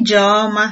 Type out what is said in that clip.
Ijeọma